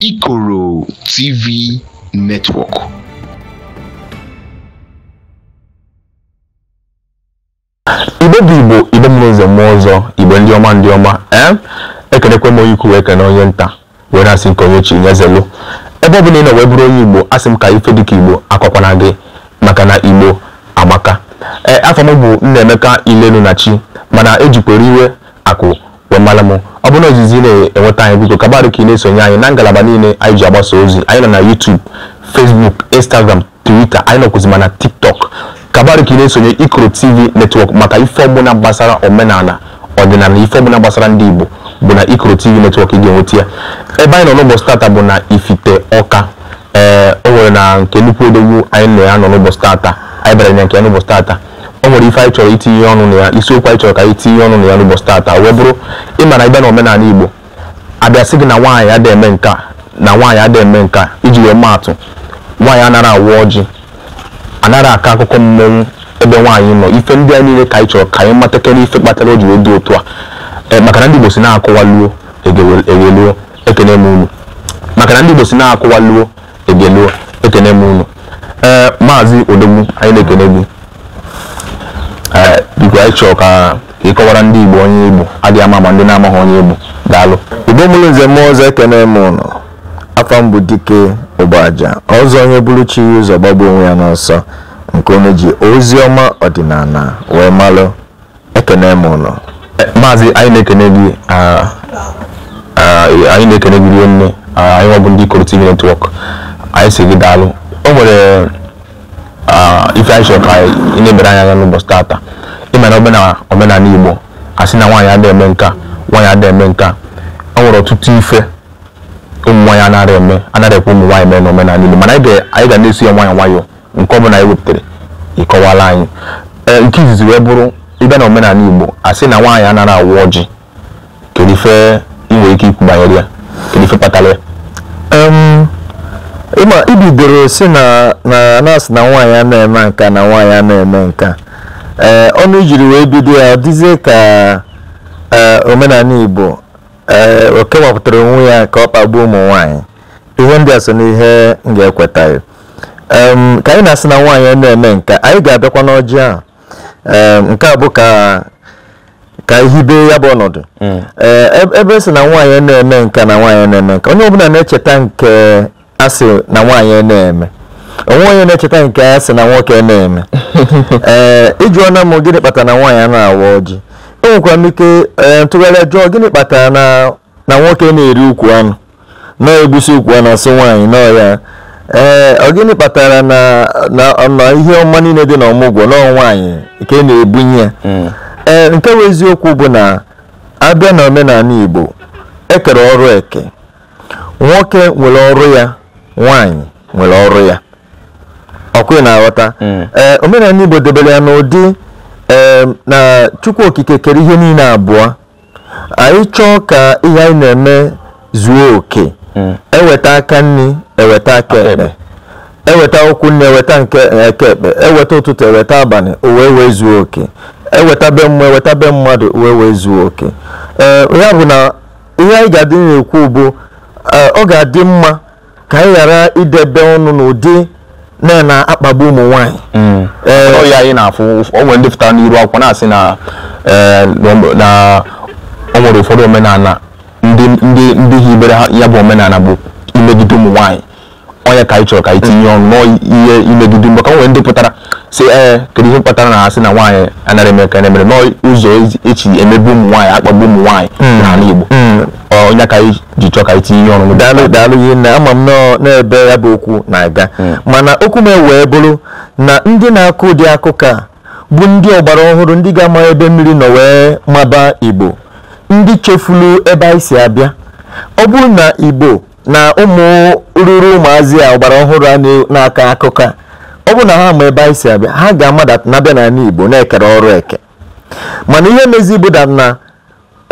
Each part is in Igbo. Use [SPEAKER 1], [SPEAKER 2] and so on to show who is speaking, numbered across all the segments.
[SPEAKER 1] Ikoro TV Network. igbe bụ igbo igbe mmụọ ụzọ mmụọ ọzọ igbo ndị ọma ndị ọma eh? ekenekwe m onye ikwu wee kene onye nta wee na-asị nke onye ochie nye ebe ọ bụla ị nọ wee bụrụ onye igbo asị m ka ife dịka igbo akọkwana gị maka na igbo amaka ee eh, afọ m bụ nnaemeka ilelu na chi mana ejikwere iwe akụ mmanụ m ọ bụrụ na ozizi na-enweta anyị biko kabarụ ka ị na-esonye anyị na ngalaba niile anyị ji agbasa ozi anyị nọ na YouTube Facebook Instagram Twitter anyị nọkwụzima na TikTok kabarụ ka ị na-esonye Ikoro TV netwọk maka ife ọbụla gbasara omenala ọdịnala ife ọbụla gbasara ndị Igbo bụ na Ikoro TV netwọk ị ga-enweta ya ebe anyị nọ n'ụbọchị tata bụ na Ifite Ọka ee o nwere na nke nnukwu edogbu anyị nọ ya nọ n'ụbọchị tata anyị bara na nke ya n'ụbọchị tata nwere ife anyị chọrọ itinye ọnụ na ya isiokwu anyị chọrọ ka anyị tinye ọnụ na ya n'ụbọchị tata wee bụrụ ịma na ịbịa na omenala Igbo abịa sị gị na nwaanyị ada eme nke na nwaanyị ada eme nke iji wee maatụ nwaanyị anaghị awụ ọjị anaghị aka akụkọ mmọnwụ ebe nwaanyị nọ ife ndị a niile ka anyị chọrọ ka anyị matakere ife kpatara o ji wee dị otu a e, maka na ndị Igbo si na-akụwa luo egeluo ekene m unu maka na ndị Igbo si na-akụwa luo egeluo ekene m unu ee maazị odogwu anyị na-ekene gị biko anyị chọrọ ka ịkọwara ndị Igbo onye Igbo adịghị ama ma ndị na-amaghị onye Igbo daalụ Igbo mụrụ nze mmụọ ọzọ ekene m ụnụ afọ mbụ dike ụgbọaja ọzọ onye bụrụ chi ya ụzọ gbagbuo onwe ya n'ọsọ nke onye ji ozi ọma ọdịnala wee malụ ekene m ụnụ e, maazị anyị na-ekene gị anyị na-ekene gị rie nne anyị nwabụ ndị Ikoro TV netwọk anyị si gị daalụ o nwere ife anyị chọrọ ka ị na-ebere anya n'ụbọchị tata ịma na omenala Igbo asị na nwaanyị ada eme nka nwaanyị ada eme nka ọ nwere ọtụtụ ife ụmụ nwaanyị anara eme anara ekwe ụmụ nwaanyị mee n'omenala niile mana anyị ga na-eso ya nwayọ nwayọọ nke ọbụla anyị wepụtara ịkọwala anyị e, nke izizi wee bụrụ ịbịa na omenala Igbo asị na nwaanyị anara awụ ọjị kedu ife ị nwere ike ikwu banyere ya kedu ife kpatara ya ịbidoro si na na-asị na nwaanyị a na-eme nka na nwaanyị a na-eme nka ee eh, ọnụ jiri wee bido ya dịzie ka eh, omenala igbo ee eh, o kewapụtara onwe ya ka ọ kpagbuo ụmụ nwanyị ihe ndị a so n'ihe m ga-ekwetaghị ka anyị na-asị na nwaanyị ọ na-eme nke anyị ga-abịakwa n'ọjị a nke a bụ ka ka ihibe ya bụ ọnọdụ mm. ebe e si na nwaanyị na-eme nke na nwaanyị na-eme nke onye ọbụla na-echeta nke asị na nwaanyị na-eme onwe onye na-echeta nke a sị na nwoke na-eme ee eh, ịjụọna m gịnị kpatara na nwaanyị a na-awa ọjị enwekwara m ike eh, ntụgharị jụọ gịnị kpatara na nwoke na-eri ukwu anụ na-egbusi ukwu anụ asị nwaanyị nọọ ya ee eh, ọ gịnị kpatara na ihe ọma niile dị n'ọmụgwọ n'ọnwaanyị nwaanyị nke na-ebunye ya hmm. ee nke bụ eziokwu bụ na abịa na omenala Igbo ekere ọrụ eke nwoke nwere ọrụ ya nwaanyị nwere ọrụ ya ọkwụ na-aghọta hmm. ee eh, omenala igbo debere ya n'ụdị ee eh, na chukwu okike kere ihe niile abụọ anyị chọọ ka ihe anyị na-eme zuo oke hmm. eweta aka nri eweta aka ekpe eweta ụkwụ nri eweta nke eke ekpe eweta ụtụtụ eweta abalị uwe wee zuo oke eweta be mmụọ eweta be mmadụ uwe wee zuo oke ee eh, ya bụ na ihe anyị ga-adị na-ekwu bụ ọ ga-adị mma ka anyị ghara idebe ọnụ n'ụdị na na-akpagbu ụmụ nwanyị mm. ọya anyị na-afụ o nwere ndị pụtara n'iru akwụkwọ na-asị na o nwere ụfọdụ omenala ndị hibere ya bụ omenala bụ imegide ụmụ nwaanyị onye ka anyị chọrọ ka anyị tinye ọnụ n'ihe imegide maka ka nwere ndị pụtara si ee kedu ihe kpatara na asị na nwaanyị anara emeka na-emere n'ụzọ echi e emebe ụmụ nwaanyị akpagbu ụmụ nwaanyị mm. n'ala Igbo mm. onye ka ji chọọ ka itinye ihe ọṅụṅụ daalụ daalụ ihe na ama m n'ebe ya bụ okwu na-aga hmm. mana okwu m wee bụrụ na ndị na-akụ ụdị akụkọ a bụ ndị ọgbara ọhụrụ ndị ga-ama ebe mmiri nọ wee maba igbo ndị chefulu ebe anyị si abịa ọ bụrụ na igbo na ụmụ ruru ụmụazị a ọgbara ọhụrụ a na-aka akụkọ a ọ bụrụ na ha ma ebe anyị si abịa ha ga-amada na-abịa n'ala igbo na-ekere ọrụ eke mana ihe mezi bụ na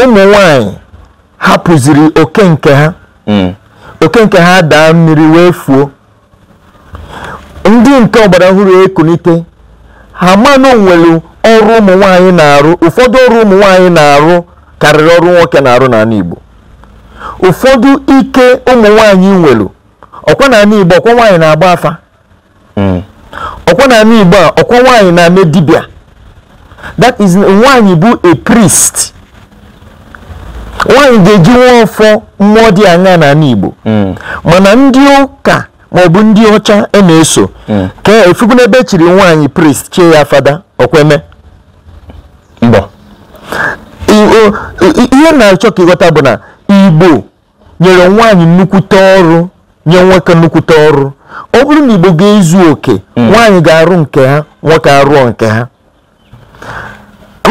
[SPEAKER 1] ụmụ nwanyị ha pụziri oke nke ha mm. oke nke ha daa mmiri wee fuo ndị nke ọgbara ọhụrụ ekunite ha manụ nwere ọrụ ụmụ nwanyị na-arụ ụfọdụ ọrụ ụmụ nwanyị na-arụ karịrị ọrụ nwoke na-arụ n'ala Igbo ụfọdụ ike ụmụ nwanyị nwere ọkwa n'ala Igbo ọkwa nwanyị na-agba afa mm. ọkwa n'ala Igbo a ọkwa nwanyị na-eme that is nwanyị bụ a priest nwaanyị ga-eji nwa ọfọ mmụọ dị anya n'ala Igbo hmm. mana ndị ụka maọbụ ndị ọcha e na-eso hmm. ka efubu n'ebe e chiri nwaanyị priest chie ya fada okweme ihe na-achọ ka ịghọta bụ na Igbo nyere nwaanyị nnukwute ọrụ nye nwoke nnukwute ọrụ ọ bụrụ na Igbo ga-ezu oke hmm. nwaanyị ga-arụ nke ha nwoke arụọ nke ha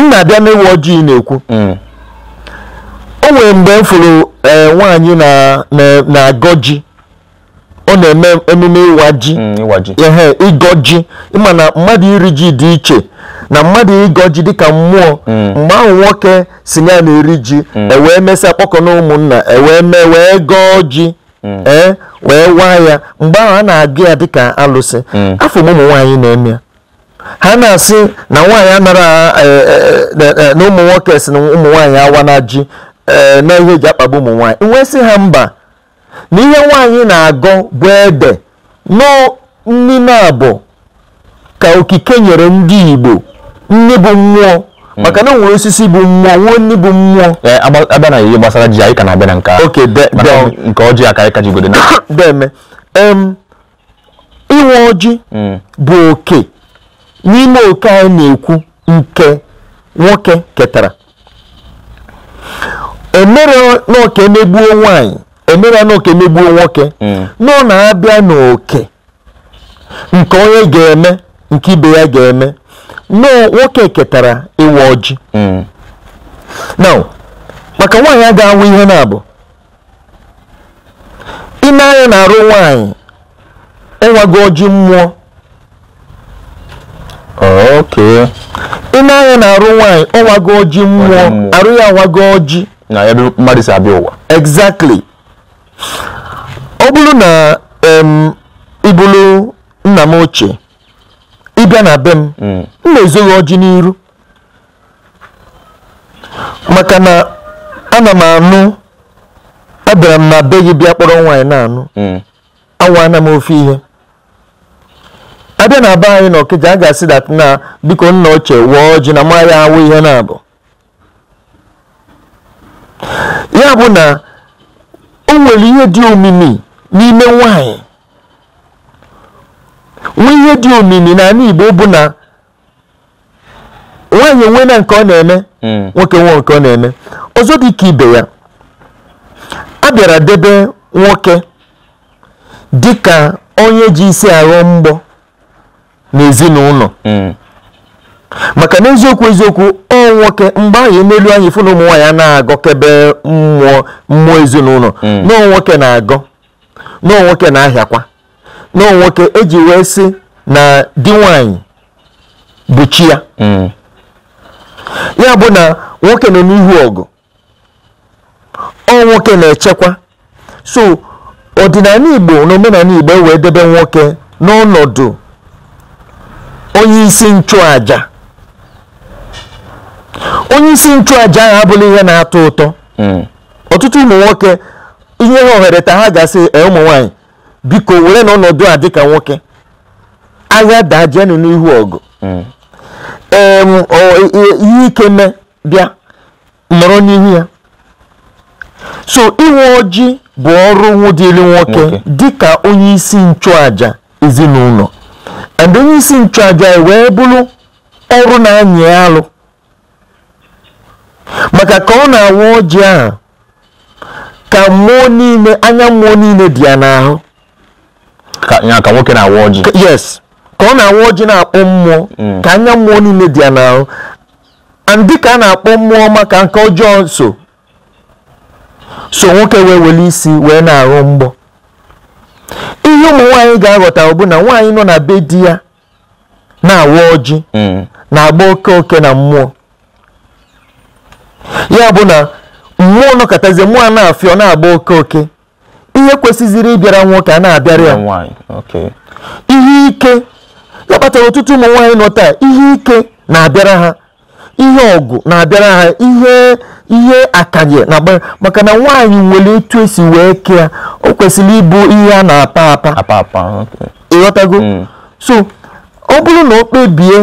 [SPEAKER 1] m na-abịa ojii na-ekwu o nwere mgbe m fụrụ eh, nwaanyị na-agọ ji ọ na-eme emume ịwa ji mm, ihe ịgọ ji ịma mmadụ iri ji dị iche na mmadụ ịgọ ji dịka mmụọ mm. mgbe ahụ nwoke si na ya na-eri ji mm. ewee mesịa kpọkọ na ụmụnna ewee mee wee gọọ ji ee wee waa ya mgbe ahụ a na-agụ ya dịka alụsị afọ m ụmụ na-eme ha na-asị na nwaanyị anara eh, eh, na ụmụ nwoke si na ụmụ awa na ji na eh, ihe eji akpagbu ụmụ nwaanyị nwee sị ha mba na ihe nwaanyị na-agọ bụ ede n'ime abụ ka okike nyere ndị Igbo nni bụ mmụọ hmm. maka na nwere osisi bụ mmụọ nwee nni bụ mmụọ eh, abịa na ihe gbasara ji anyị ka na-abịa na nke nke ọjị aka anyị ka jigodo na deme inwe ọjị hmm. bụ oke n'ime oke anyị na-ekwu nke nwoke ketara emere n'oke emegbuo nwanyị emere n'oke megbuo nwoke hmm. nọ na-abịa n'oke nke onye ga-eme nke ibe ya ga-eme nọ nwoke ketara ịwa ọjị hmm. now maka nwaanyị a ga-anwụ ihe na-abụ ime anya na-arụ nwaanyị ịnwago ọjị mmụọ ime anya na-arụ nwaanyị ọnwago ọjị mmụọ arụ ya nwago ọjị na ebe mmadụ si abịa ụwa exactly ọ bụrụ na ịbụrụ nna m ochie ịbịa na be m hmm. m na-ezoghị ọjị n'iru maka na ana m anụ abịara m na be gị bịa kpọrọ nwaanyị na-anụ hmm. anwana m ofe ihe abịa na be anyị na Okija a ga-asị dat na biko nna ochie wụọ ọjị na maya awụ ihe na-abụ ya bụ na o nwere ihe dị omimi n'ime nwanyị nwe ihe dị omimi n'ala Igbo bụ na nwanyị enwe nke ọ na-eme hmm. nwoke nwe nke ọ na-eme ọzọ dị ka ibe ya a bịara debe nwoke dị ka onye ji isi arụ mgbọ n'ezinụlọ hmm. maka na eziokwu eziokwu ọ nwoke mgbe anyị n'elu anyị fụ na ụmụ nwaanyị na-agọkebe mmụọ mmụọ ezinụlọ hmm. nọọ nwoke na-agọ nọọ nwoke na-ahịakwa nọọ nwoke eji wee sị na di nwaanyị bụ chi ya hmm. ya bụ na nwoke nọ n'ihu ọgụ ọ nwoke na-echekwa so ọdịnala Igbo na omenala Igbo ewee debe nwoke n'ọnọdụ onye isi nchụàja onye isi nchụaja ahụ abụla ihe na-atọ ụtọ hmm. ọtụtụ ụmụ nwoke ihe ha ohere ta ha gasị ụmụ nwanyị biko were na ọnọdụ a dịka nwoke ahịa dajenụ n'ihu ọgụ hmm. ihe ike mee bịa nọrọ n'ihu ya so iwe ojii bụ ọrụ nwụdịrị nwoke dịka onye isi nchụaja ezinụlọ and onye isi nchụaja wee bụrụ ọrụ na-anyị alụ maka ka ọ na-awa ọjị ahụ ka mmụọ niile anya mmụọ niile dị ya n'ahụ ka nwoke na-awa ọjị yes ka ọ na-awa ọjị na-akpọ mmụọ mm. ka anya mmụọ niile dị ya n'ahụ ndị ka a na-akpọ mmụọ maka nke ọjọọ nso so nwoke wee were isi wee na-aghọ mgbọ ihe ụmụ nwaanyị ga-aghọta bụ na nwaanyị nọ na be di ya na-awa ọjị mm. na-agba oke oke na mmụọ ya bụ na mmụọ nọkọtazie mmụọ na-afịọ na-agba oke oke ihe kwesịziri ịbịara nwoke a na-abịara ya ihe ike ya kpatara ọtụtụ ụmụ nwaanyị nọ taa ihe ike na-abịara ha ihe ọgụ na-abịara ha ihe ihe akanye na-agbara maka na nwaanyị nwere etu esi wee kee o kwesịrị ịbụ ihe a na-apa apa ịghọtago mm. so ọ bụrụ na o kpebie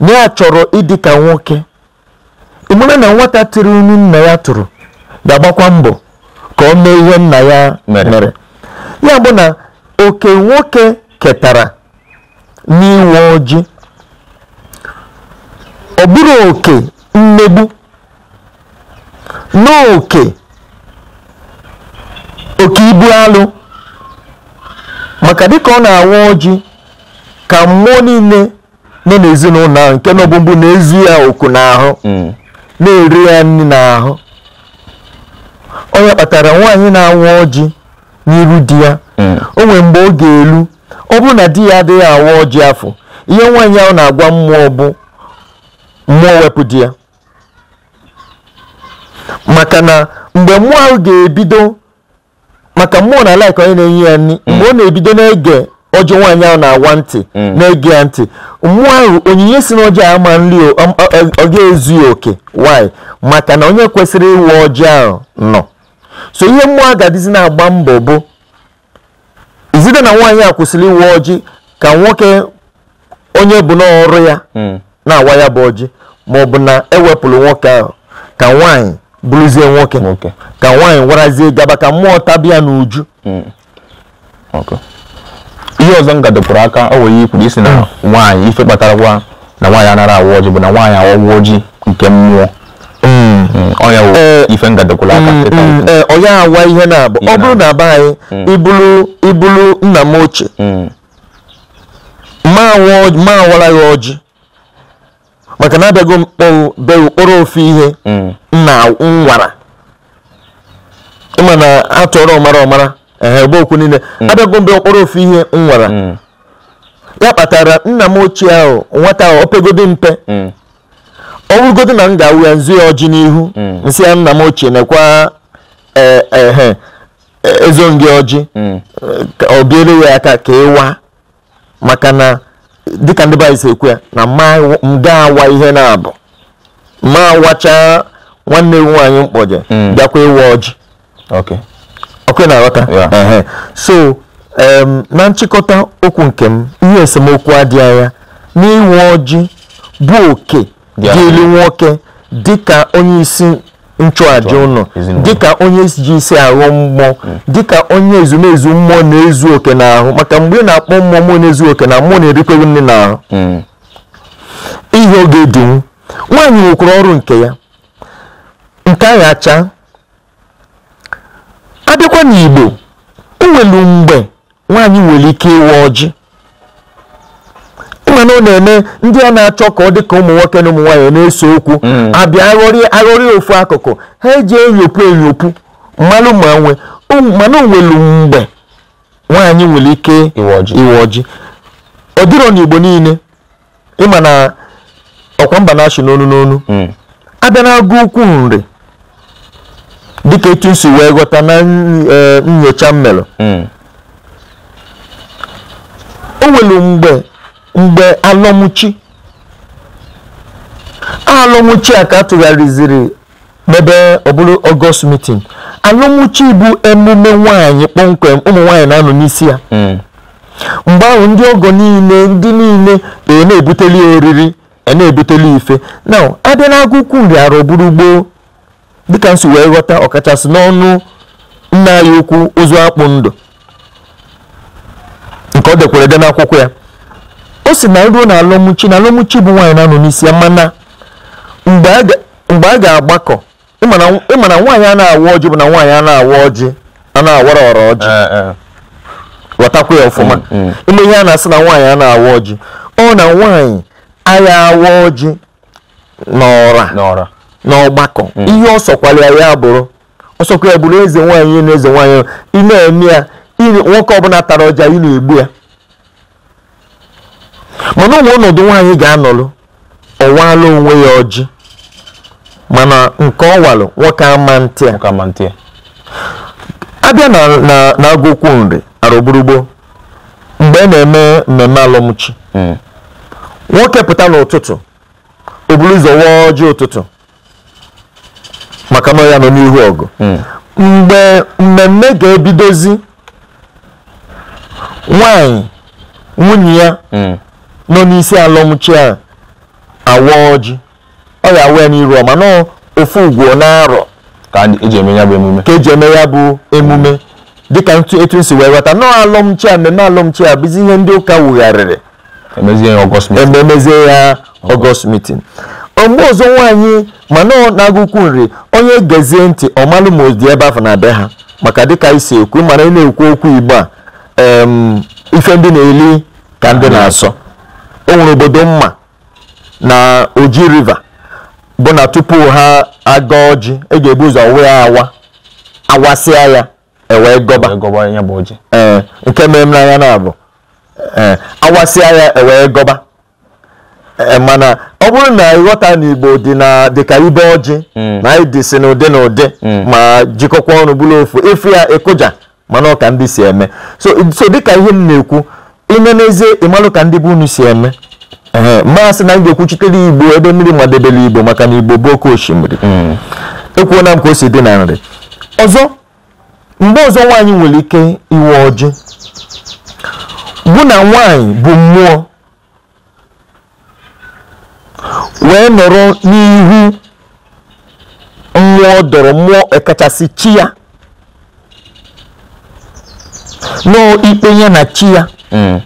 [SPEAKER 1] na ya chọrọ ịdị ka nwoke nwere na nwata tiri unu nna ya tụrụ ga-agbakwa mbọ ka o mee ihe nna ya mere ya bụ na oke nwoke ketara n'inwe ojii ọ bụrụ oke mmegbu n'oke oke ibu alụ maka dịka ọ na-awa ojii ka mmụọ niile nọ n'ezinụlọ ahụ nke nọbụ mbụ na-ezu ya oku n'ahụ mm. na-eri ya nri n'ahụ ya kpatara nwaanyị na-anwụ ọjị n'iru di ya hmm. o nwee mgbe ọ ga-elu ọ bụrụ na di ya adịghị awa ọjị afọ ihe nwaanyị ahụ na-agwa mmụọ bụ mmụọ wepụ di ya maka na mgbe mmụọ ahụ ga-ebido maka mmụọ na laik onye na-enye ya nri mgbe hmm. ọ na-ebido na ọjọ nwaanyị ahụ na-agwa ntị mm. na-ege ya ntị mmụọ ahụ onyinye si n'ọjị ahụ ama nri ọ ga ya oke nwanyị maka na onye kwesịrị ịwụ ọjị ahụ nọ so ihe mmụọ agadizi na-agba mbọ bụ izide na nwaanyị a kwụsịrị ịwụ ọjị ka nwoke onye bụ n'ọrụ ya mm. na-awa ya bụ ọjị ma ọ bụ na ewepụrụ nwoke ahụ ka nwaanyị bụrụzie nwoke ka nwaanyị warazie gaba ka mmụọ tabia n'uju mm. ihe ọzọ m gadopụrụ aka o wee ikwuru isi na nwaanyị ife kpatarakwa na nwaanyị anara awa ọjị bụ na nwaanyị awa ọgwụ ọjị nke mmụọ mm. Mm, ọnya wụ eh, ife ngadokwụrụ aka mm, eh, ọnya awa ihe na abụ ọ bụrụ na be anyị ibulu ibulu nna m ochie ma awara ya ọjị maka na abịago mkpọrụ be ụkpọrọ ofe ihe nna nwara ịma na atụọrọ ọmara ọmara Ehe ebe okwu niile mm. abịago mgbe mkpọrọ ofu ihe m nwara mm. ya kpatara nna m ochie ahụ nwata ahụ opegodi mpe mm. ọ bụrụgodi na m ga-awụ ya nzu ya ọjị n'ihu nsị ya nna m ochie nekwa ehe e, ezongị ọjị ọ biere ya aka ka ịwa maka na dịka ndị si ekwu ya na mde awa ihe na-abụ ma wacha nwanne m nwaanyị mkpọje bịakwa ịwa ọjị ọkụ na-aghọta so na nchịkọta okwu nke m ihe esemokwu adịghị anya n'inwe ọjị bụ oke dị elu nwoke dịka onye isi nchụàja ụnụ dịka onye ji isi aghọ mmụọ hmm. dịka onye ezumezu mmụọ na-ezu oke n'ahụ maka mgbe ị na-akpọ mmụọ mụ na-ezu oke na mmụọ na-erikweghị nne n'ahụ hmm. ihe oge dịwu nwaanyị nwekwara ọrụ nke ya nke agha acha abịakwa n'Igbo enwelu mgbe nwaanyị nwere ike ịwa ọjị mana ọ na-eme ndị a na-achọ ka ọ dị ka ụmụ nwoke na ụmụ nwaanyị na eso okwu hmm. abịa aghọrị ofu akụkụ ha eji enyopu enyopu mmanụ ma nwe mana onwelu mgbe nwaanyị nwere ike iwe ọjị ọ dịrọ n'Igbo niile ịma na ọkwa mba na-achị n'onu n'onu hmm. abịa na-agụ ukwu nri dịka etu si wee ghọta na e, nyocha m hmm. o nwere mgbe mgbe alọmụchi alọmụchi a ka atụgharịziri n'ebe ọ bụrụ ọgọst mitin alọmụchi bụ emume nwanyị kpọmkwem ụmụ nwaanyị na-anọ n'isi ya hmm. mgbe ahụ ndị ọgọ niile ndị niile e na-ebuteli oriri e na-ebuteli ife na abịa nri arọ bụrụ dịka nsi wee ghọta ọkachasị n'ọnụ nna anyị ukwu ozu akpụ ndụ nke ọ dekwara ede n'akwụkwọ ya o si na ruo na alọmụchi na alọmụchi bụ nwaanyị na-anọ n'isi ya mana mgbe a ga-agbakọ ịma na nwaanyị a na-awa ọjị bụ na nwaanyị a na-awa ọjị a na-awara ọra ọjị eh, eh. ghọtakwa ya ọfụma mm, mm. ime ihe a na-asị na nwaanyị a na-awa ọjị ọ na nwaanyị agha awa ọjị n'ọra n'ọgbakọ mm. ihe ọ sọkwara ya bụrụ ọsọkwa ya bụrụ eze nwaanyị na eze nwaanyị ị na-eme ya nwoke ọbụla tara ọja ị na-egbu ya mana ụmụ ọnọdụ nwaanyị ga-anọlụ ọwala onwe ya ọjị mana nke ọwalụ nwoke ama ntị a. abịa na agụkwu nri arụgburugbo mgbe a e na-eme mmemme alụmchi mm. nwoke pụta n'ụtụtụ o buru ụzọ ọjị ụtụtụ maka na ya nọ n'ihu ọgụ hmm. mgbe mmemme ga-ebidozi nwanyị nwunye ya hmm. nọ n'isi alụmchi a awa ọjị ọ ya awa ya n'iru ọma nọ ofu ugwu na-arọ ka eji eme ya bụ emume ka eji eme ya bụ emume dịka ntu etu si wee ghọta nọọ alụmchi a mmemme alọmchi a bụzi ihe ndị ụka wugharịrị emezie ya ọgọst mitin. mgbe ọzọ nwaanyị mana ọ na agụkwu ukwu nri onye gezie ntị ọmalụ ma dị ebe afọ na be ha maka dịka isi ekwu mana ị na-ekwu okwu igbo a ife ndị na-eli ka ndị na-asọ o nwere obodo mma na oji river bụ na tupu ha aga ọjị e ga-ebu ụzọ wee awa awasịa ya ewee gọba ee nke mere m n'anya na-abụ awasịa ya ewee gọba Eh, eh, mana ọ bụrụ na ịghọta na Igbo dị na dịka ibe ọjị hmm. na anyị dị si n'ụdị na ụdị hmm. ma jikọkwa ọnụ bụrụ ofu efu ya ịkụja mana ọka ndị si eme so dịka ihe m na-ekwu ime n'ezie ịmalụ ka ndị bụ unu si eme mmasị na m ga-ekwuchitere Igbo ebe mmiri madebere Igbo maka na Igbo bụ oke osimiri hmm. ekwuona m ka o si dị na nri ọzọ mgbe ọzọ nwaanyị nwere ike iwe ọjị bụ na nwaanyị bụ mmụọ wee nọrọ n'ihu mmụọ dọrọ mmụọ ekachasị chi ya nọọ ikpe ya na chi ya hmm.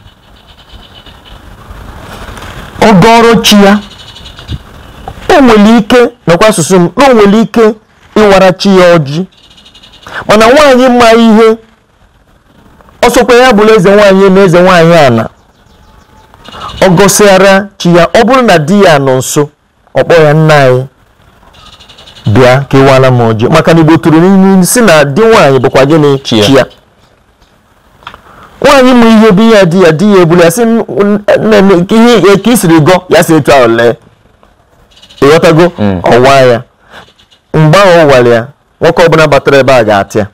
[SPEAKER 1] ọgọrọ chi ya o nwere ike nakwa asụsụ m na ike ịwara chi ya ọjị mana nwaanyị ma ihe ọsọkwa ya bụla eze nwaanyị na eze nwaanyị ana ọ gọsịara chi ya ọ bụrụ na di ya nọ nso ọ kpọọ ya nna anyị bịa kewara m ọjị maka na igbo tụrụ n'ime si na di nwaanyị bụkwa gịnị chi ya nwaanyị mụ ihe bụ ya di ya di ya ebula ya sị ihe ka isiri gọ ya si etu ahụ ịghọtago mm. ọwa ya mgbe ahụ ọ ya nwoke ọbụla batara ebe a ga-atịa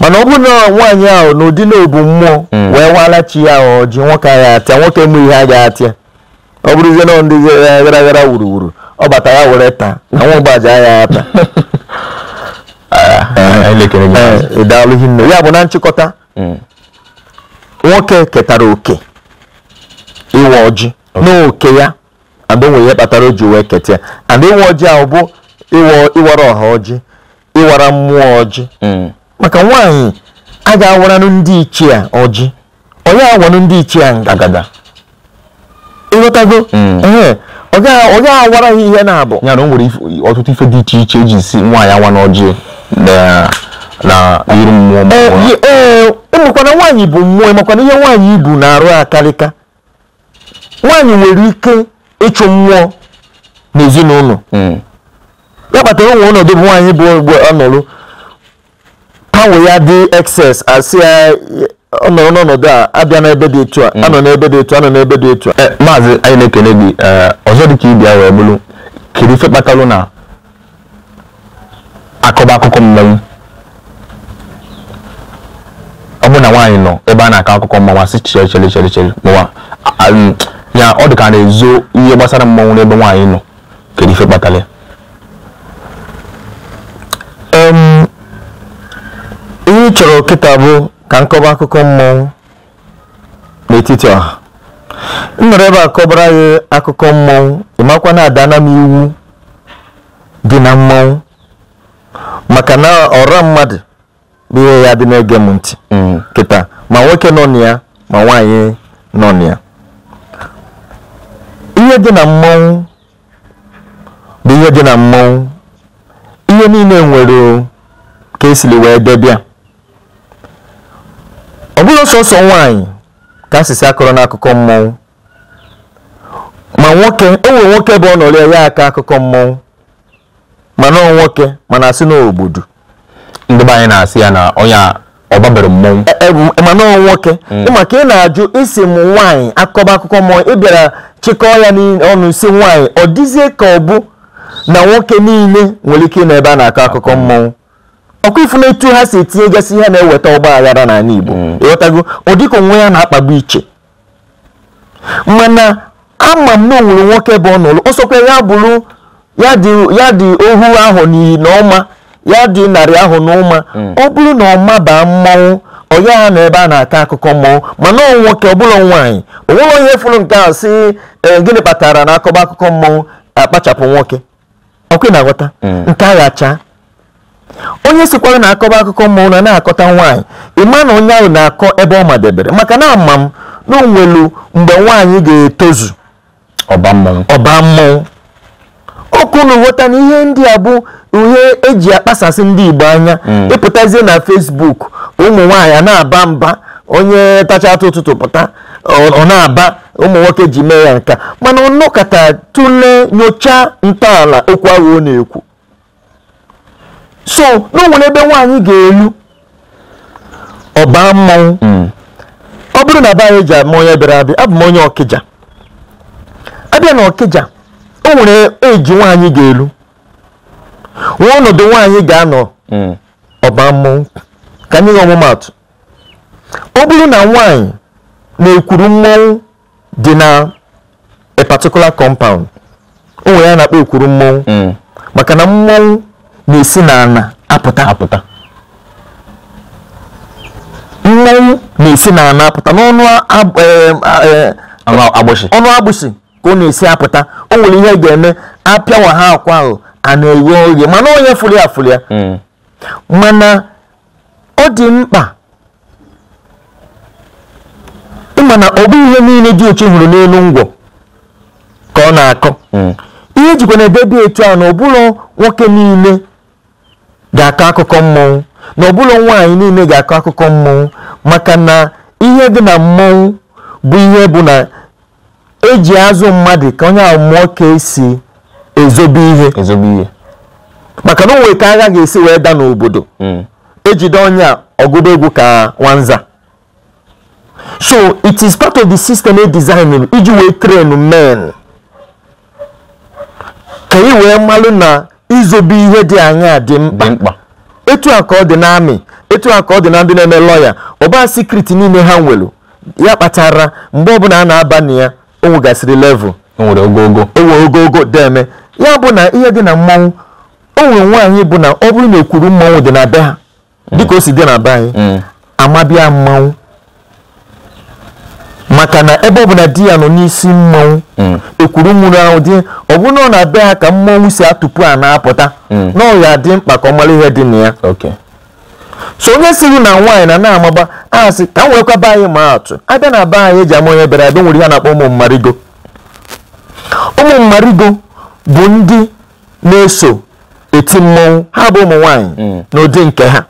[SPEAKER 1] mana ọ bụrụ na nwaanyị ahụ n'ụdị na mmụọ mm. wee wara chi ya ahụ ji nwoke agha atịa nwoke mụ ihe agaghị atịa ọ bụrụzie na ndị gara gara wuruwuru ọ bata ya were taa na nwa ụgbaji agha ata ah, ah, ịdaalụghị eh, nne ya bụ na nchịkọta mm. nwoke ketara oke ịwa ọjị n'oke ya adonwe ihe kpatara o ji wee keta and ịwa ọjị ahụ bụ ịwara ọha ọjị ịwara mmụọ ọjị mm. maka nwaanyị a ga-awaranụ ndị ichie a ọjị onye awanụ ndị ichie a agada ịghọtago mm. ee ọ gaghị awara ha ihe na-abụ ya na o nwere ọtụtụ ife dị iche iche eji si nwaanyị awa n'ọjị na iru mmụọ ee ụmụkwana e, e, e nwaanyị bụ mmụọ makwana ihe nwaanyị ibu na-arụ akarịka nwaanyị nwere ike ịchụ mmụọ n'ezinụlọ mm. ya kpatara onwe ọnọdụ bụ nwaanyị bụ mgbe mgbanwe ya dị excess asị ya ọ nọrọ n'ọnọdụ a abịa n'ebe dị etu a anọ n'ebe dị etu anọ n'ebe dị etu a eh, maazị anyị na-ekene gị eh, ọzọ dị ka ibi wee bụrụ kedu ife kpatalụ na akọba akụkọ mmanwụ ọ bụ na nwaanyị nọ ebe a na-akọ akụkọ mmanwụ asị chere chere chere chere mụwa ya ọ dị ka na-ezo ihe gbasara mmanwụ n'ebe nwaanyị nọ kedu ife kpatara ya ị chọrọ kịta bụ ka nkọba akụkọ mmọnwụ n'etiti ọha m ebe a kọbara gị akụkọ mmọnwụ ịmakwa na adana m iwu dị na mmọnwụ maka na ọra mmadụ bụ ihe ya dị na-ege m ntị ma nwoke nọ na ya ma nwaanyị nọ na ya ihe dị na mmọnwụ bụ ihe dị na mmọnwụ ihe niile nwere ka esili wee debịa ọ bụghị sọsọ nwaanyị ka asịsị akọrọ n'akụkọ mmọnwụ ma nwoke o nwere nwoke bụ ọnọrọ ya aka akụkọ mmọnwụ mana ọ nwoke mana asị n'obodo ndị be anyị na-asị ya na ọnya ọbabere mmọnwụ e, e, e, mana ọ nwoke hmm. maka ị na-ajụ isi m nwaanyị akọba akụkọ mmọnwụ ị bịara chịkọọ ya n'ọnụ si nwaanyị ọ dịzie ka ọ bụ na nwoke niile nwere ike ị na ebe a na-akọ akụkọ mmọnwụ ọkwa ifu na ha si etinye gasị ihe na-eweta ọgba aghara n'ala Igbo mm. ịghọtago ọ dịka onwe ya na-akpagbu iche mana ama m na onwere nwoke bụ ọnụlụ ọsọkwa ya bụrụ ya dị ohu ahụ n'iyi na ọma ya dị narị ahụ n'ụma mm. ọ bụrụ na ọma baa mmanwụ ọya ha na ebe a na-akọ akụkọ mmọnwụ mana ọ nwoke ọ bụla nwaanyị onwere onye fụrụ nke a si e, gịnị kpatara na akọba akụkọ mmọnwụ akpachapụ nwoke ọkwe na-aghọta mm. nke onye sikwara na akọba akụkọ mmụọ na na-akọta nwaanyị ịma na onye ahụ na-akọ ebe ọ madebere maka na ama m na onwelu mgbe nwaanyị ga-etozu ọba mmụọ na ghọta na ihe ndị a bụ ihe eji akpasasị ndị Igbo anya hmm. ịpụtazie na fesbuk ụmụ nwaanyị na-aba mba onye tacha atụ ụtụtụ pụta ọ na-aba ụmụ nwoke ji mee ya nka mana ọ nọkọta tụlee nyochaa ntọala okwu ahụ ọ na-ekwu so n'onwere ebe nwaanyị ga-elu ọba mmanwụ hmm. ọ bụrụ na be eji ji ama onye bịara abịa abụ m onye ọkịja abịa na ọkịja o nwere eji nwaanyị ga-elu nwa ọnọdụ nwaanyị ga-anọ hmm. ọba mmanwụ ka anyị nye ọmụmatụ ọ bụrụ na nwaanyị na-ekwuru mmanwụ dị na a particular compound o nwere ya na-akpọ ekwuru mmanwụ hmm. maka na mmanwụ na-esi n'ala apụta apụta mmanwụ na-esi n'ala apụta n'ọnụ e- e- e- agbụsị ọnụ agbụsị ka ọ na-esi apụta o nwere ihe ga-eme apịawa ha akwa ahụ a na-eghe oghe mana onye ya furu ya hmm. mana ọ dị mkpa ịma na ọ bụ ihe niile dị otu hụrụ n'elu ngwọ ka ọ na-akọ hmm. ihe jikwa na ebe dị etu a na ọ bụrụ nwoke niile ga-akọ akụkọ mmọnwụ na ọbụla nwaanyị niile ga-akọ akụkọ mmọnwụ maka na ihe dị na mmọnwụ bụ ihe bụ na eji azụ mmadụ ka onye amụọ mụọ ka esi ezobe ihe maka na onwe ka agha ga-esi wee da n'obodo hmm. ejide onye a egwu ka nwanza so it is part of the system e designing iji wee train men ka ị wee malụ na izobe ihe dị aṅaa dị mkpa etu a ka ọ dị na amị etu a ka ọ dị na ndị na-eme lọya ọba sikriti niile ha nwere ya kpatara mgbe ọbụla a na-aba na ya o nwegasịrị level o nwere ogogo deme ya bụ na ihe dị na mmanwụ o nwere nwaanyị bụ na ọ bụrụ na ekwuru mmanwụ dị na be ha dịka o si dị na be anyị mm. amabịa mmanwụ maka na ebe ọbụla di ya nọ n'isi mmọnwụ mm. ekwuru nwụrụ ahụ dị ọbụna na abịa ha ka mmọnwụ si atụpụ a na-apụta mm. na ọya dị mkpa ka ọ mara ihe dị na ya so onye siri na nwaanyị na na-amaba asị ka m nwekwa be anyị ma atụ abịa na be anyị eji ama onye bịara abịa nwere ihe na-akpọ ụmụ mmarigo ụmụ mmarigo bụ ndị na-eso eti mmọnwụ ha bụ ụmụ nwaanyị mm. n'ụdị nke ha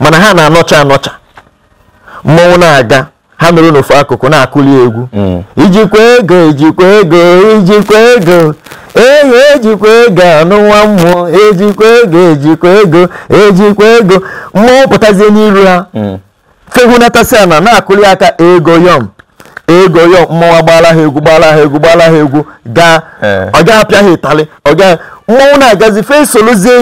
[SPEAKER 1] mana ha na-anọcha anọcha mmọnwụ na-aga ha nọrọ n'ofu akụkụ na-akụli egwu hmm. ijikwa ego ijikwa ego ijikwa ego ehi ejikwa ego anụ nwa mmụọ ejikwa ego ejikwa ego ejikwa ego mmụọ pụtazie n'iru ha hmm. fehunatasi ana na-akụli aka ego yọm ego yọm mmụọ gbaala ha egwu gbaala ha egwu gbaala ha egwu gaa eh. ọ ga-apịa ha ịtalị ọ ga mmọnwụ na-agazi fe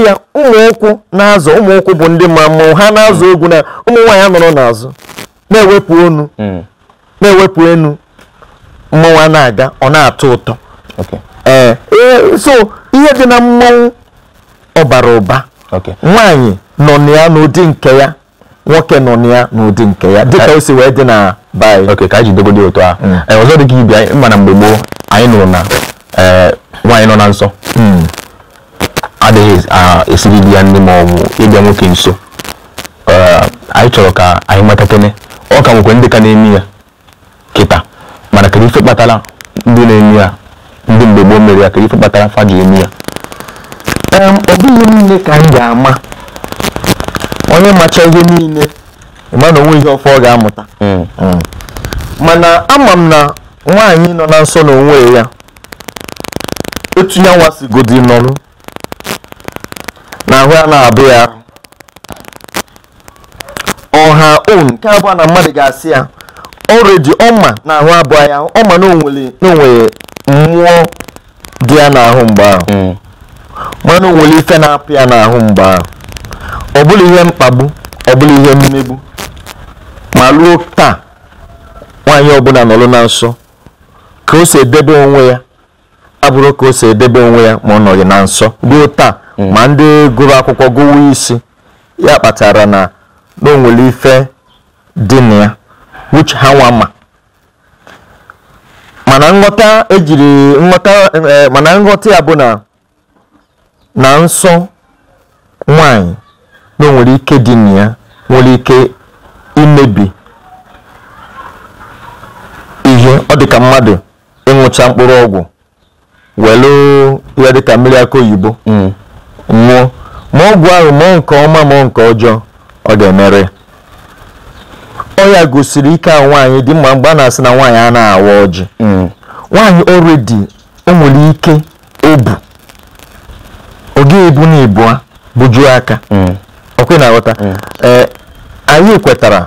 [SPEAKER 1] ya ụmụ ụkwụ na-azụ ụmụ ụkwụ bụ ndị ma mmọnwụ ha na-azụ egwu na ụmụ nwaanyị nọrọ n'azụ na-ewepụ onu hmm. na-ewepụ enu mmọnwa na-aga ọ na-atọ ụtọ eh, eh, so ihe dị na mmọnwụ ọbara ụba nwaanyị nọ na ya n'ụdị nke ya nwoke nọ na ya n'ụdị nke ya dịka o si wee dị na baị ok ka anyị jidogodo otu a hmm. eh, ọzọ dị ka ibi anyị mana mgbe gboo anyị nụrụ na nwaanyị nọ na nsọ hmm. adịghị ah, esiri di ya ndị ma ọ bụ ịbịa nwoke nso anyị chọrọ ka anyị matatene ọ ka nwekwa ndị ka na-emi ya kịta mana kedu ife kpatara ndị na-emi ya ndị mgbe gboo mere ya kedu ife kpatara fa eme emi ya ọ bụghị niile ka m ga-ama onye macha ihe niile ịma na onwe ihe ọfọ ọ ga-amụta mana ama m na nwaanyị nọ na nsọ na onwe ya etu ya godi nọrọ na ahụ ya na-abụ ya ha own nke abụọ na mmadụ ga-asị ya ọredi ọma na ahụ abụọ ya ọma na mmụọ dị ya n'ahụ mgbe ahụ mm. mana o nwere ife na-apụ ya n'ahụ mgbe ahụ ọ bụla ihe mkpagbu ọ bụla ihe mmegbu ma luo taa nwaanyị ọbụla nọrọ na nsọ ka o si edebe onwe ya abụrụ ka o si edebe onwe ya ma ọ nọghị na nsọ ruo taa mm. ma ndị gụrụ akwụkwọ gụwa isi ya kpatara na na o nwere ife dị na ya which ha nwa mana nghọta ejiri e, ya bụ na na nsọ nwanyị na o nwere ike dị na ya nwere ike imebi ihe ọ dị ka mmadụ ịṅụcha mkpụrụ ọgwụ welu ihe dịka mmiri aka oyibo nwụọ mm. ma ọgwụ ahụ mụọ nke ọma ma nke ọjọọ ọ ga-emere ọ ya gosiri ike a nwaanyị dị mma mgbe a na-asị na nwaanyị a na-awa ọjị mm. nwaanyị oredi o nwere ike obu oge ebu na a bujuo aka mm. ọkwe na-aghọta mm. e, anyị kwetara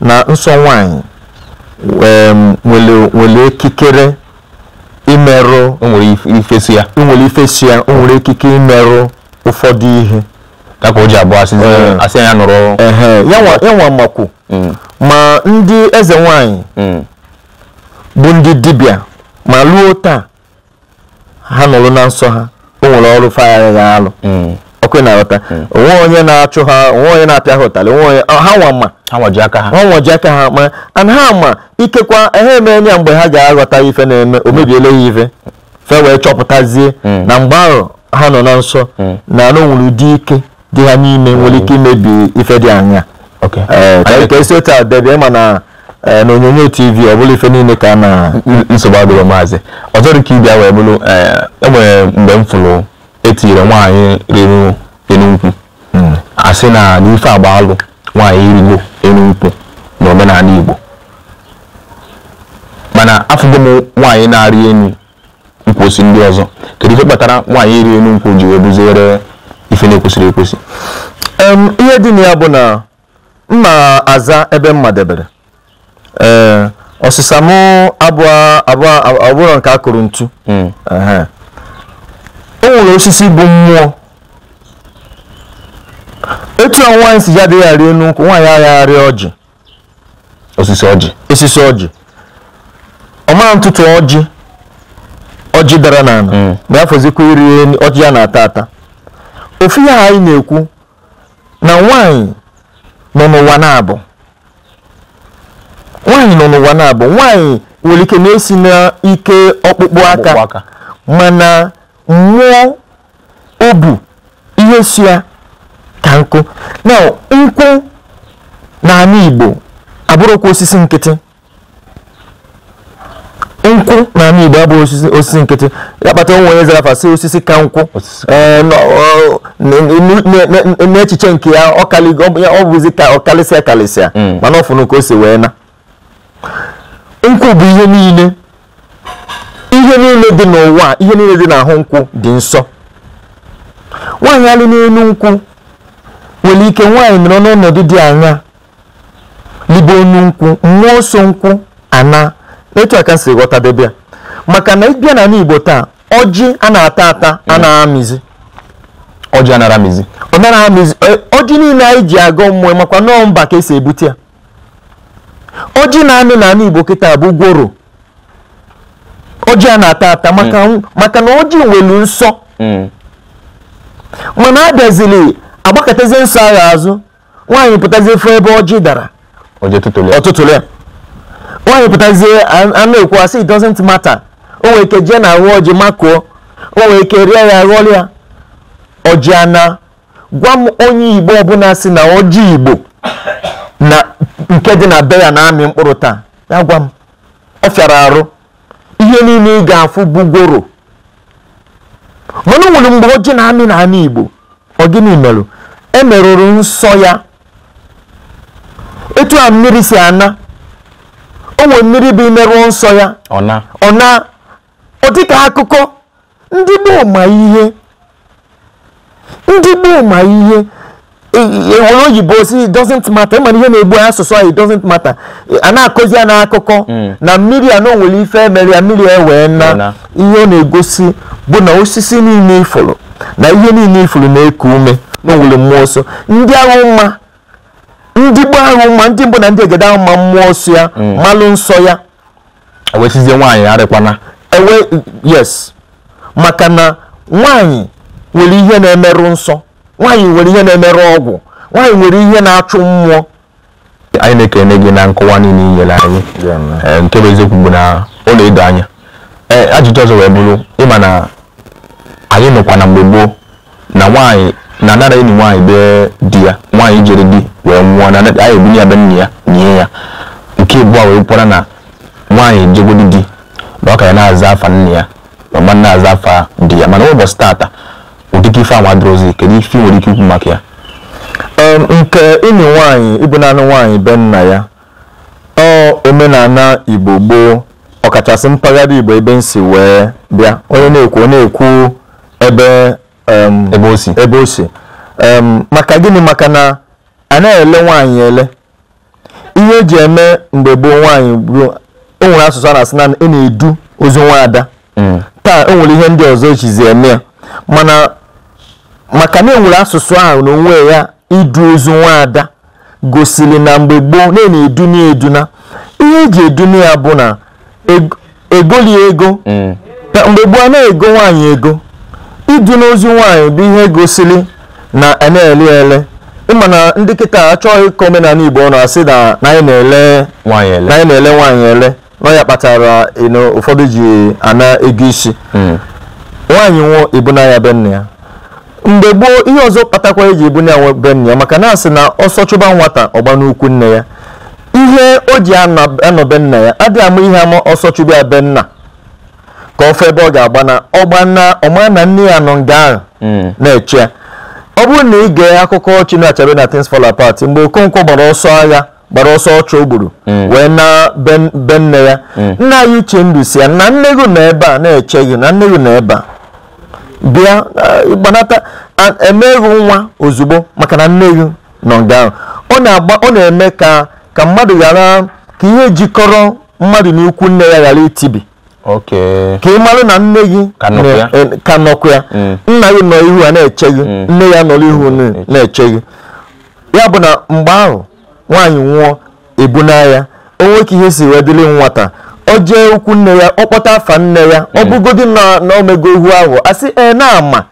[SPEAKER 1] na nsọ nwaanyị nwere okikere imerụ ifesi ya o nwere ikike imerụ ụfọdụ ihe ka o ji abụọ asị ya nụrụ ya nwa makwu mm. ma ndị eze nwanyị mm. bụ ndị dibịa ma luo taa ha nụrụ na nsọ ha o nwere ọrụ fagharị ha alụ mm. ọkụ na-aghọta onwe onye na-achụ ha onwe onye na-apịa ha ụtalị onwe onye ha nwa ma ha nwaji aka ha ha nwaji aka ha ma and ha ma ikekwa ha eme ya mgbe ha ga-aghọta ife na-eme o mebiela ya ife fe wee chọpụtazie na mgbe ahụ ha nọ na nsọ na anụ nwere ụdị ike dị ha n'ime nwere ike imebi ife dị anya ka esi otu a debia ma na e, na onyonyo tv ọ bụla ife niile ka na nsogbu adịrọ maazị ọzọ dị ka ịbịa wee bụrụ enwere e mgbe m fụrụ etinyere nwaanyị rịrụ enu nkwụ hmm. asị na n'ife agba alụ nwaanyị irigo enu nkwụ na omenala igbo mana afụgo m nwaanyị na-arị enu nkwụsị ndị ọzọ kedu ife kpatara nwaanyị iri enu nkwụ ji wee ife na-ekwesịrị ekwesị ihe dị na ya bụ na m na-aza ebe mma debere ọsịsa eh, m abụọ nke a kụrụ ntu hmm. o nwere osisi bụ mmụọ etu a nwaanyị si ya adịghị arị elu nkwụ nwaanyị agharị ọjị osisi ọjị osisi ọjị ọmara ntụtụ ọjị ọjị dara n'ala hmm. ma ya fọzikwa iri ọjị ya na-ata ata ofu ihe anyị na-ekwu na nwanyị nọ n'ụwa na-abụ nwanyị nọ n'ụwa na-abụ nwanyị nwere ike na-esi n'ike ọkpụkpụ aka mana mmụọ obu ihe si ya ka nkụ na nkwụ na Igbo abụrụkwa osisi nkịtị nkwụ na Igbo abụghị osisi nkịtị kpata onwe onye zara fasị osisi ka nkwụ n'echiche eh, nke ya ọ bụzi ka ọ kalịsịa kalịsịa mm. mana ọfụnụ ka o si wee na nkwụ bụ ihe niile ihe niile dị n'ụwa ihe niile dị n'ahụ nkwụ dị nsọ nwaanyị alị n'elu nkwụ nwere ike nwaanyị nọrọ n'ọnọdụ dị anya libe onye nkwụ mmụọ nsọ nkwụ ana etu aka si ghọtadebe ya maka na ịbịa na Igbo taa ọjị a na-ata ata a ọjị a na-amịzi ọ na-amịzi e, ọjị niile anyị ji agọ mmụọ makwa nọọ mba ka esi ebute ya ọjị na-amị na ala Igbo kịta bụ gworo ọjị a na-ata ata mm. maka na ọjị nwelu nsọ mm. mana abịazili agbakọtazie nsọ agha azụ nwaanyị pụtazie fụ ebe ọjị dara ọtụtụlụ ya nwaanyị pụtazie anụ ekwu asị it doesn't matter o nwere ike jee na arụ ọjị makụọ o nwere ike rie ya ghọrịa ọjị ana gwa m onye igbo ọbụla si na ọjị igbo na nke dị na be ya na-amị mkpụrụ taa ya gwa m ọ fịara arụ ihe niile ị ga-afụ bugoro mana nwere mgbe ọjị na-amị na igbo ọ gịnị merụ emerụrụ nsọ ya etu a mmiri si ana o mmiri bụ imerụ nsọ ya ọ na ọ dịka akụkọ ndị gboo ihe ndị gboo ma ihe enwere e, e, oyibo si doesn't matter ịmana ihe na-egbu asụsụ anyị doesn't matter a na-akụzi ya n'akụkọ hmm. na mmiri a nwere ife emere ya mmiri ewee na ihe ọ na-egosi bụ na osisi niile ifuru na ihe niile ifuru na-eku ume na mmụọ nsọ ndị ahụ mma ndị gbo ahụ ma ndị mbụ na ndị egede ahụ ma mmụọ nsọ ya mm. malụ nsọ ya ewesizie nwaanyị arịkwana ewe yes maka na nwaanyị nwere ihe na-emerụ nsọ nwaanyị nwere ihe na-emerụ ọgwụ nwaanyị nwere ihe na-achụ mmụọ anyị na-ekene gị na nkọwa niile inyere anyị eh, nke bụ eziokwu bụ na ọ na-edo anya eh, ajụjụ ọzọ wee bụrụ ịma na anyị nọkwa na mgbe gboo na nwaanyị na anara enyi nwaanyị bee di ya nwaanyị jere di wee nwụọ na a ebu ya be nne ya nye ya nke abụọ wee kwara na nwaanyị jegodi di na ọ ka ya na-aza afa nne ya ma na-aza afa di ya mana ụbọchị taata ụdịka ife anwa dịrozi kedu ife nwere ike ikwu maka ya nke enyi nwanyị ịbụ naanị nwanyị be nna ya ọ omenala igbo gboo ọkachasị mpaghara igbo ebe nsi wee bịa onye na-ekwu onye na-ekwu ebe Um, ebe o si ebe o si um, maka gịnị maka na a na-ele nwaanyị ele ihe eji eme mgbe gboo nwaanyị ruo o nwere asụsụ a na-asị naanị, ị na-edu ozu nwaada mm. taa o nwere ihe ndị ọzọ echizi eme ya mana maka na enwere asụsụ ahụ na onwe ya idu ozu nwaada gosiri na mgbe gboo na e na eduna ihe eji na ya bụ na e, egoli ego mm. mgbe gboo a na-ego nwaanyị ego idu n'ozi nwaanyị bụ ihe gosili na e a ele ele ịma na ndị kịta achọghị ka omenala igbo nọ asị na anyị na-ele nwaanyị ele na ya kpatara ụfọdụ ji ana ego isi hmm. nwaanyị nwụọ ibuna ya ya mgbe gboo ihe ọzọ kpatakwa eji ibuna ya be nna ya maka na asị na ọsọ chụba nwata ọgba n'ukwu nne ya ihe o ji anọbe nna ya adịghị ama ihe ama ọsọ chụba ya benna ka ofe ebe ọ ga-agba na ọma na nne ya nọ nga ahụ hmm. na-eche ọ bụrụ na ị gee akụkọ ọchị na achabe na Things Fall Apart mgbe Okonkwo gbara ọsọ agha gbara ọsọ ọcha o gburu hmm. wee na be nne ya hmm. nna anyị uche ndụ si ya na nne gị nọ ebe a na-eche gị na nne gị nọ ebe a bịa eh, gbanata emeghị nwa ozugbo maka na nne gị nọ nga ahụ ọ na-eme ka ka mmadụ ghara ka ihe jikọrọ mmadụ n'ukwu nne ya ghara itibi ka ị mara na nne gị ka nọkwa ya nna gị nọ ihu a na-eche gị mm. nne ya nọrọ ihu mm. na-eche gị ya bụ na mgbe ahụ nwaanyị nwụọ ebu ya o nweke ka ihe si wee dịrị nwata o jee ukwu nne ya ọ kpọta afa nne ya ọ mm. bụgodi na omego ihu ahụ asị ee na-ama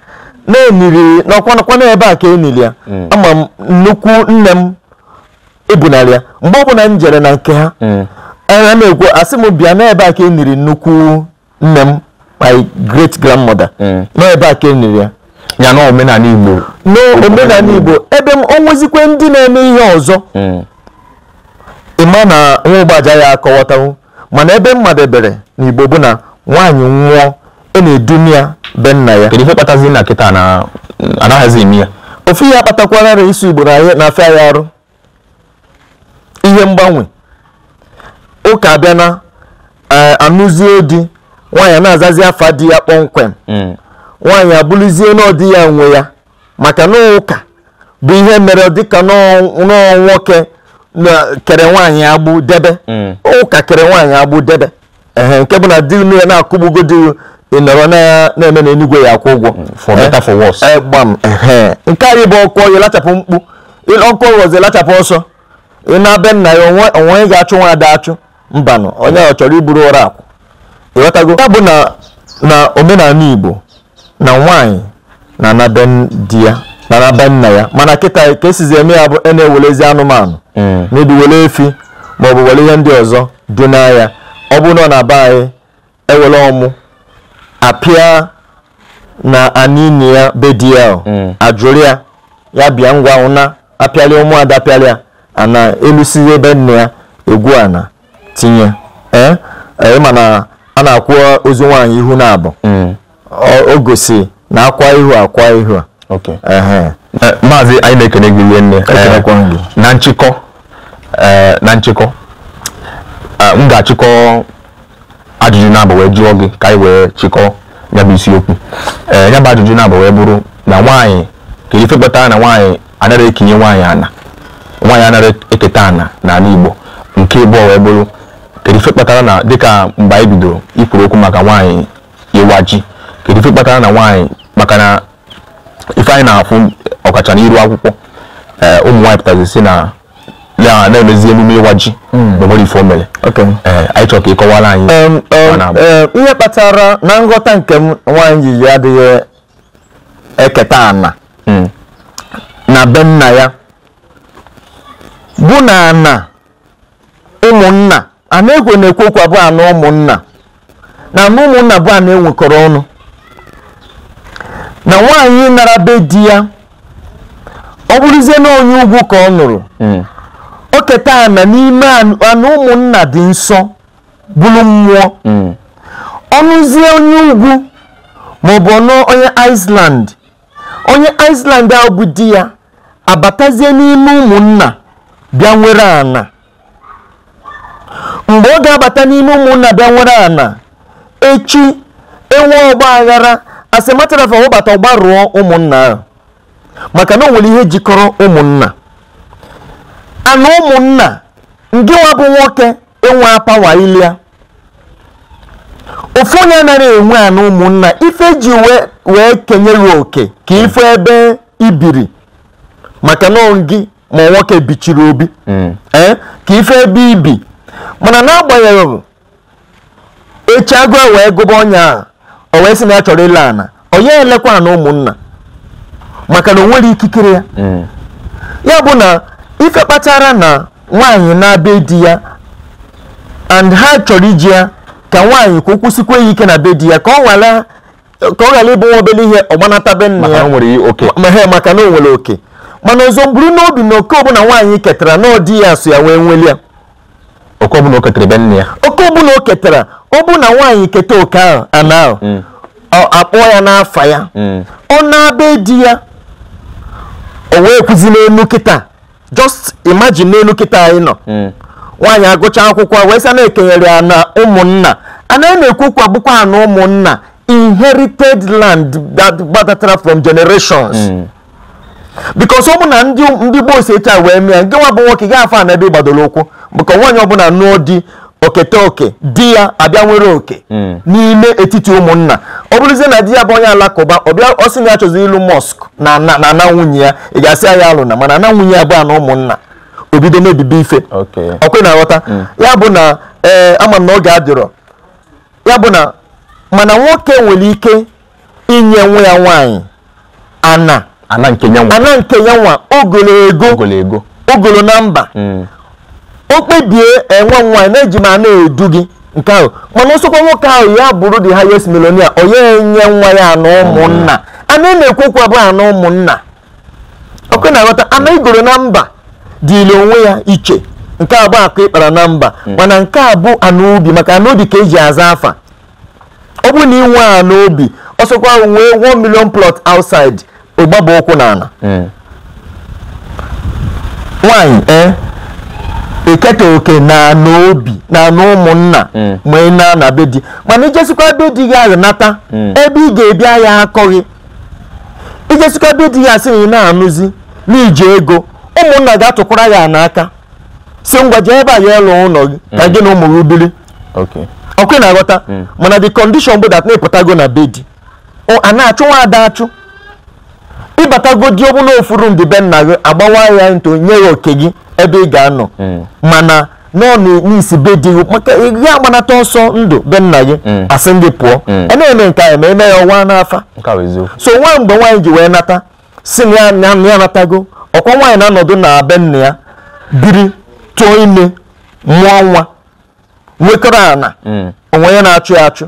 [SPEAKER 1] na-eniri n'ọkwanakwa n'ebe a ka eniri ya ama m nnukwu nne m ebunara ya mgbe ọ m jere na nke ha ana m ekwu asị m bịa n'ebe a ka e nnukwu nne m my great grandmother mm. n'ebe a ka e ya ya na omenala igbo n'omenala igbo ebe m onwezikwe ndị na-eme ihe ọzọ mm. ịma na nwa ụgbaja ya akọwatawo mana ebe mmadebere na igbo bụ na nwaanyị nwụọ ị e na-edumi ya be nna ya kedu ihe kpatazi na kịta na anaghịzi eme ya ofu ihe akpatakwarara isi igbo na afọ ya arụ ihe mgbanwe ụka bia na e, anụzie di nwaanyị na-azazi afa di ya kpọmkwem mm. nwaanyị abụrụzie na ya nwe ya maka na ụka bụ ihe mere dịka nọọ nwoke kere nwaanyị agbụ debe mm. ụka kere nwaanyị agbụ debe nke bụ na di ya na-akụgbugo di ịnọrọ na-eme na enugwe ya akwụ ụgwọ mm, nke anyị bụ ọkụ ọyị lachapụ mkpu ọkụ ọghọzi lachapụ ọsọ ị na-abịa nna ya onwe ga-achụ nwa ada achụ mbanụ onye ọ chọrọ iburu ụra akwụ ịghọtago ya bụ na omenala igbo na nwaanyị na anabe di ya na anabe nna ya mana kịta ka esizi eme ya bụ a e na-ewelezi anụmanụ mebi hmm. wele efi maọbụ wele ihe ndị ọzọ dị ya ọ bụ na ọ na-aba anyị ewele ọmụ apịa na anini ya be ya ajụrụ hmm. ya ya bịa ngwa na apịalị ụmụada ya ana elusizi ebe nne ya egwu ana tinye ee ee mana a na-akwụ ozu nwaanyị ihu na abụ mm. o gosi na akwa ihu akwa ihu a e, maazị anyị na-ekene gị nne e, e, na nchịkọ na nchịkọ m ga-achịkọ ajụjụ na-abụ wee jụọ gị ka anyị wee chịkọ ya isiokwu ee ya ajụjụ na-abụ wee bụrụ na nwaanyị ka ife kpatara na nwaanyị anaghị ekenye nwaanyị ana nwaanyị anaghị eketa ana n'ala Igbo nke ịbụọ wee bụrụ kedufe kpatara na dịka mgbe anyị bidoro ikwuru okwu maka nwanyị ịwa ji kedu kpatara na nwanyị maka na ife anyị na-afụ ọkacha n'iru akwụkwọ eh, ụmụ nwaanyị pụtara si na na-emezi emume ịwa ji n'obodo ife o mere anyị chọrọ ka ị kọwara anyị ihe kpatara na nghọta nke m nwaanyị ji adịghị eketa ana hmm. na be nna ya bụ na ana ụmụnna Anegwe na-ekwekwa bụ anụ ụmụnna na anụ ụmụnna bụ anụ enwekọrọ ọnụ na nwaanyị nara be di ya ọ bụrụzie na onye ugwu ka ọ nụrụ hmm. o keta ana n'ime anụ ụmụnna dị nsọ bụrụ mmụọ hmm. ọnụzie onye ugwu bụ ọnụ onye Iceland onye Iceland ahụ bụ di ya abatazie n'ime ụmụnna bịa nwere ana mgbe ọ ga-abata n'ime ụmụnna bịa nwere ana echi enwe ọgba aghara asịmatarafa wụbata rụọ ụmụnna ahụ maka na o nwere ihe jikọrọ ụmụnna ana ụmụnna ngị nwa bụ nwoke enwe apawa ilia ofu onye anaghị enwe ana ụmụnna ife ji wee kenyere oke ka ife ebe ibiri maka na gị ma nwoke bichiri obi mm. eh, ka ife ebe ibi mana n'agbanyeghị echi agụ e wee gụba ọnya a o wee sị na ya chọrọ ile ana onye elekwa na ụmụnna maka na o nwere ikikere ya mm. ya bụ na ife kpatara na nwaanyị na-abịa di ya and ha chọrọ iji ya ka nwaanyị ka o ya ike na be di ya ka ọ ghara ịbụ nwa obele ihe be nna ya maka na o nwere oke mana ọzọ mburu n'obi na oke ọbụla nwaanyị ketara na ọ dị ya so ya wee nweli ya oke ọbụla o ketere ebe nne ya oke ọbụla o ketara ọ bụ na nwaanyị keta oke ahụ ana ahụ mm. akpọọ ya n'afa ya mm. ọ na-abịa di ya o wee kwuzi n'elu kịta just imagine n'elu kịta anyị nọ mm. nwaanyị agụcha akwụkwọ wee na-ekenyere ya na ụmụnna a na-ekwu kwa bụkwa na ụmụnna inherited land that from generations bikos ụmụna ndị um, ndị gboo si e wee mee nke nwa bụ nwoke ga afa na ebe gbadoro ụkwụ maka nwaanyị ọbụla nụọ di okete oke di ya abịa nwere oke hmm. n'ime etiti ụmụnna ọ bụrụzie na di ya bụ onye alakụba ọbịa ọsị sị na ya chọzi ịlụ mọsk na ana nwunye ya ị ga-asị anya ya alụna mana ana nwunye ya bụ na ụmụnna obido mebibi ife ọkwe na aghọta hmm. ya bụ na ee ama na oge adịrọ ya bụ na mana nwoke nwere ike inye nwa ya nwaanyị ana ana nke ya nwa ogologo ogolo na namba. Mm. o kpebie enwe nwa na-eji ma na-edu gị nke ahụ mana ọsọkwa nwoke ahụ ya bụrụ the highest millionaire onye nye nwa ya na ụmụnna mm. ana na-ekwekwa bụ ana ụmụnna oke na-aghọta ana mm. igoro na mba dịịrị onwe ya iche nke a bụ akụ ịkpara na mba mana nke a bụ anaobi ubi maka ana obi ka eji aza afa ọ bụrụ na inwe ana obi ọsọkwa nwee 1 million plot outside ụgbaba ụkwụ n'ala hmm. nwanyị eh, e eketa oke na n'obi na n'ụmụnna hmm. ma ị na na be di mana ijesikwa be di gị aghọnata hmm. ebe ị ga-ebi ya akọghị ijesikwa be di ya asị na ị na-anụzi n'iji ego ụmụnna ga-atụkwara ya n'aka si ngwa jee ebe a ya ịlụ ụlọ gị ka gị na ụmụ gị biri ọkụ na-aghọta mana di kọndishọn bụ dat na-epụtago na be di a na-achụ nwa ada achụ ịbatagodi ọbụla ofuru ndị be nna gị agbawa ya ntụ nye ya oke gị ebe ị ga-anọ mm. mana n'ọnụ n'isi be di gị maka ya agbanata ọsọ ndụ be nna gị mm. asị ndị pụọ mm. a na-eme nke anyị ma eme ya ọnwa n'afa so nwa mgbe nwaanyị ji wee nata si na ya natago ọkwa nwaanyị na-anọdụ na be nna ya biri tụọ ime mụọ nwa nwekọrọ ana onwe ya na-achụ ya achụ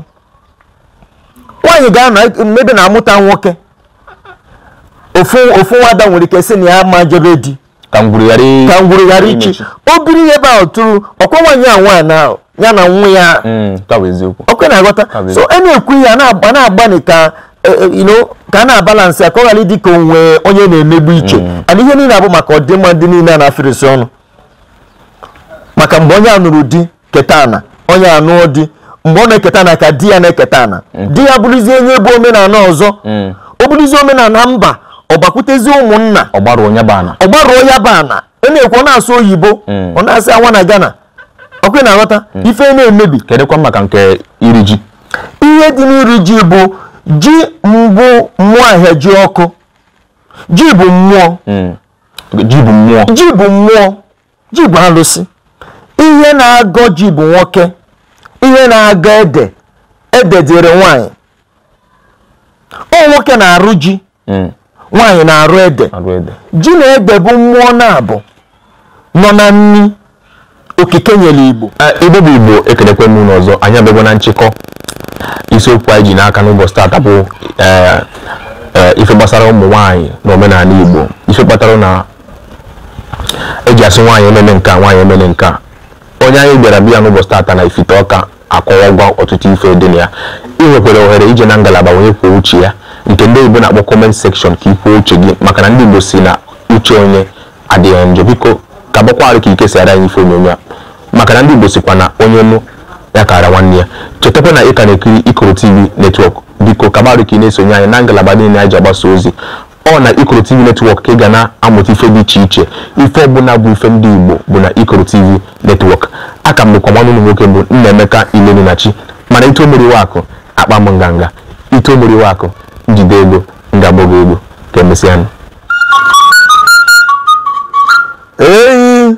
[SPEAKER 1] nwaanyị ga-anọ ebe na-amụta nwoke ofu nwada nwere ike sị na ya ma jebe di ka ngwuru ghara ichi o biri ihe ebe a tụrụ ọkwa nwaanyị a nwaanyị ahụ ya na nwa ya mm, ọkwa na-aghọta so a na-ekwu ihe a na-agbani ka e, e, ka a na-abalansị ka ọ ghara ịdị ka onwe onye na-emegbu iche mm. ana ihe niile abụ maka ọdịmma dị niile a na-afịrịsị ọnụ maka mgbe onye a nụrụ di keta ana onye anụ di mgbe ọ na-eketa na ka di ya na-eketa ana mm. di ya bụrụzie onye bụ omenala ọzọ ọ bụrụzie omenala mba ọgbakwutezi ụmụnna ọgbaruo ya bana ọgbaruo ya bana ọ na-ekwu ọ na-asụ oyibo hmm. ọ na-asị awa na Ghana ọkwe na-aghọta hmm. ife na-emebi kedụkwa maka nke iri ji ihe dị n'iri ji bụ ji mbụ mmụọ ahịa ji ọkụ ji bụ mmụọ hmm. ji bụ mmụọ ji bụ mmụọ ji bụ alụsị ihe na-agọ ji bụ nwoke ihe na-agọ ede ede dịrị nwaanyị ọ nwoke na-arụ ji nwaanyị na-arụ ede ji na ede bụ mmụọ na-abụ nọ na nri okike nyere igbo ebe bụ igbo ekelekwe m ọzọ anyị na nchịkọ isiokwu anyị ji n'aka n'ụbọchị taata bụ e, e, ife gbasara ụmụ nwaanyị na omenala igbo ife kpatara na eji asị nwaanyị emele nke nwaanyị emele nke onye anyị bịara biya n'ụbọchị taata na ifite ọka akọwagwa ọtụtụ ife dị na ya ị nwekwara ohere ije na ngalaba onye kwuo uche ya nke ndị oyibo na-akpọ comment section ka ikwuo uche gị maka na ndị igbo si na uche onye adịghị njọ biko ka gbakwarụ ka ikesara anyị ife onyonyo a maka na ndị igbo sikwa na onye nụ ya kara nwanne ya chetakwa na ị ka na-ekiri ikoro tv netwọk biko kabarụ ka ị na-esonye anyị na ngalaba dị na ji agbasa ozi ọ na ikoro tv netwọk ka ị ga na-amụta ife dị iche iche ife ọbụla bụ ife ndị igbo bụ na ikoro tv netwọk aka m bụkwa nwanne ụmụ nwoke bụ nna emeka ilenunachi mana ito mmiri akụ akpa m nganga ito mmiri akụ njide ego m ga ego ka emesịa m eyi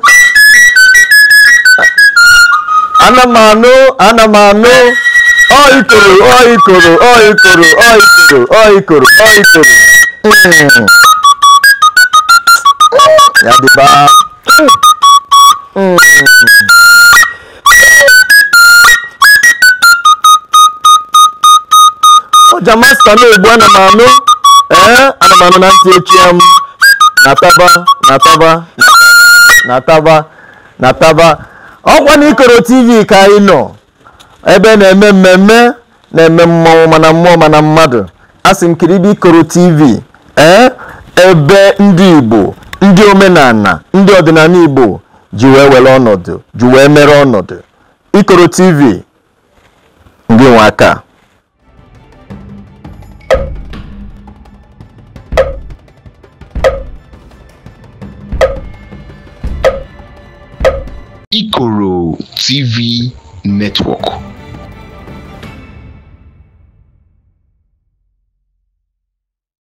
[SPEAKER 1] ana m anụ ana m anụ ọikoro ọikoro ọikoro ọikoro ọikoro ọikoro hmm. ya dịba hmm. hmm. Naija masta na-egbu ana m anụ ee eh, ana m anụ na ntị echi ya m nataba nataba nataba nataba ọkwa na ikoro tv ka anyị nọ ebe na-eme mmemme na-eme mmọnwụ mana mmụọ mana mmadụ asị m kiribe ikoro tv ee eh, ebe ndị igbo ndị omenala ndị ọdịnala igbo ji wee were ọnọdụ ji wee mere ọnọdụ ikoro tv ndị nwe aka TV network.